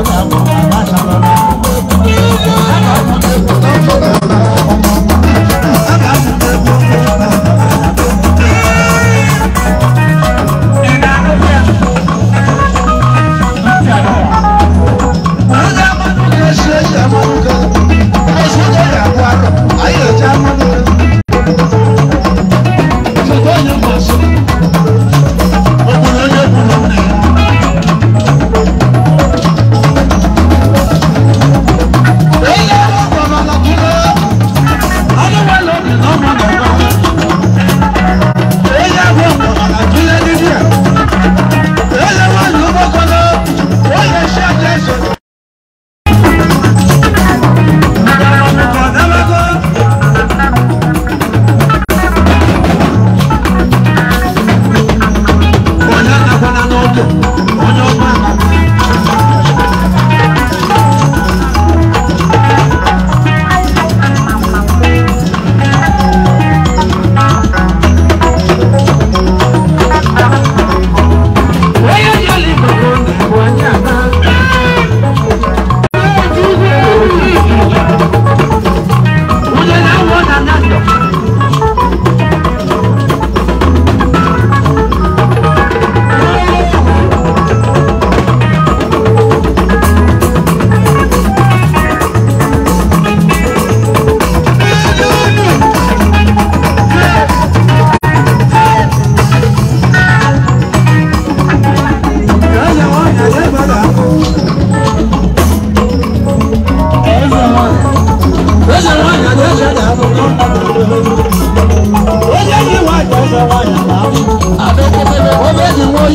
I'm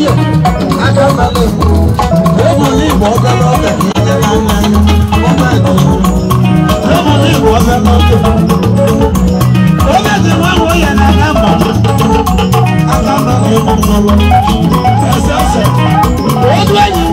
yọ adábalẹ̀ lẹ́mu ní ìwọ ọbẹ̀ lọ́bẹ̀ kì í jẹ́ máa ń lẹ́nu wọ́n bá ẹ̀dùn lẹ́mu ní ìwọ ọbẹ̀ lọ́bẹ̀. Obìnrin wọn wò yẹn náà ká mọ̀ adábalẹ̀ mọ̀ lọ ẹsẹ̀ ọ̀sẹ̀ ojú ẹ̀yìn.